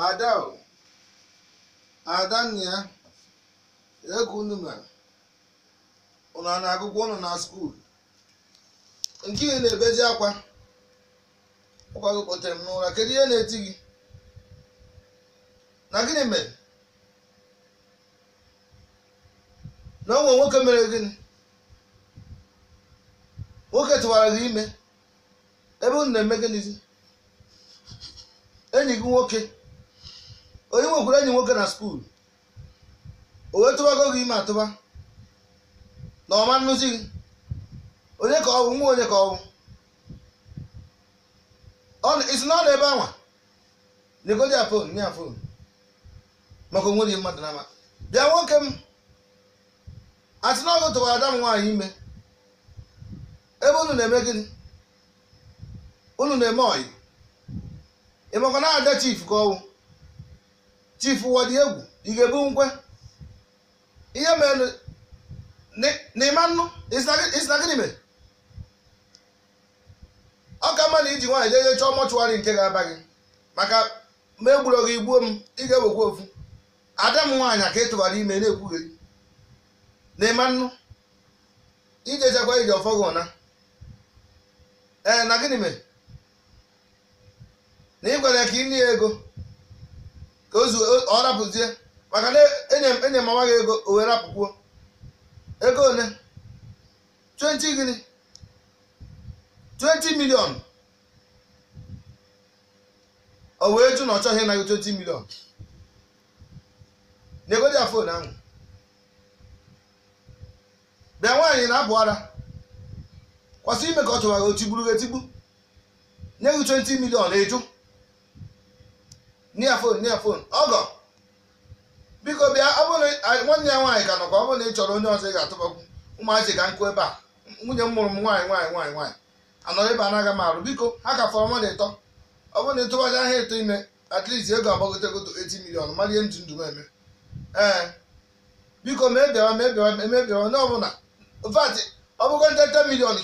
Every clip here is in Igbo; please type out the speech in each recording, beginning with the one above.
ada adanna egwu unu mere ụlọ na-agụgwọ unu na skuul nke ị na ebezi akwa ụkwa gị kpọtere m n'ụra kedu ihe na-eti gị na gịnị mere na onwe nwoke mere gịnị nwoke tụwara gị ime ebe unu na-eme gịnịzi enyi gị nwoke onye nwekwara enyi nwoke na skuul o wee tụbago gị ime atụba na ọma nnụzi gị onye ka ọ bụ nwa onye ka ọ ọwụ isi na ọ na ebe anwa nyegodi ya fon nye ya fon maka onwe onwere mmadụ na bịa nwoke m asị na ọgụ tụwara ada m nwaanyị ime ebe unu na-eme gịnị unu na-eme ọyị ịmakwa na ada chief ka ọwụ chief wadi egwu ị ga-ebu nkwe ihe mere n'ịma nnụ isina gịnị mere ọ ka mma na iji nwaanyị jeje chọọ mọchụwarị nke ga-aba gị maka ma egburo gị igbuo m ị ga-ewekwa ofu ada m nwaanyị aka ịtụghara ime na-ekwugheri n'ịma nnụ ijechekwa ije ọfọ gị ụna ee na gịnị mere na ị gwara ka ị nye ego ka ọ rapụzie maka na enye mama e gị ego o were rapụkwuo ego ole 20 gịnị 20 milion o wee jụ na ọ chọghị ịnaghị 20 milion na-egodi ya fon ahụ bịa nwaanyị na-apụ ara kwasị ime ka ọ chọwara ochigburu etigbu nye gị 20 milion na-eju near phone near phone ọgọ biko bịa ọ nwanne ya nwaanyị ka nọkwa ọ bụrụ na ị chọrọ onye ọzọ ị ga-atụbakwu ụmụazị ka nkụ ebe a nwunye m mụrụ m nwaanyị nwaanyị nwaanyị nwaanyị anọrọ ebe anaghị m arụ biko ha ka fọrọ mmadụ ịtọ ọ bụrụ na ịtụbaja eto ime at least ego agbagotegoto 80 million mmadụ ihe m ji ndụ m eme ee ka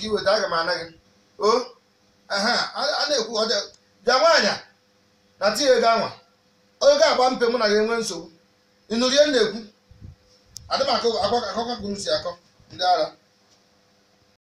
ị weta aga m oh, a na tinye ego anwa oge agba mpe mụ na gị enwe nsogbu ịnụrie na-ekwu adịm akụkọ akụkọ si akọ ndị ara